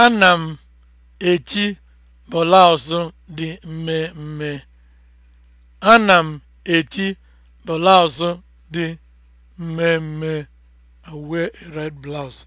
Ana m eti bolausụ dị mmemme. Ana m eti bolausụ dị mmemme. I wear red blouse.